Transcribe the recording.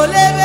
ole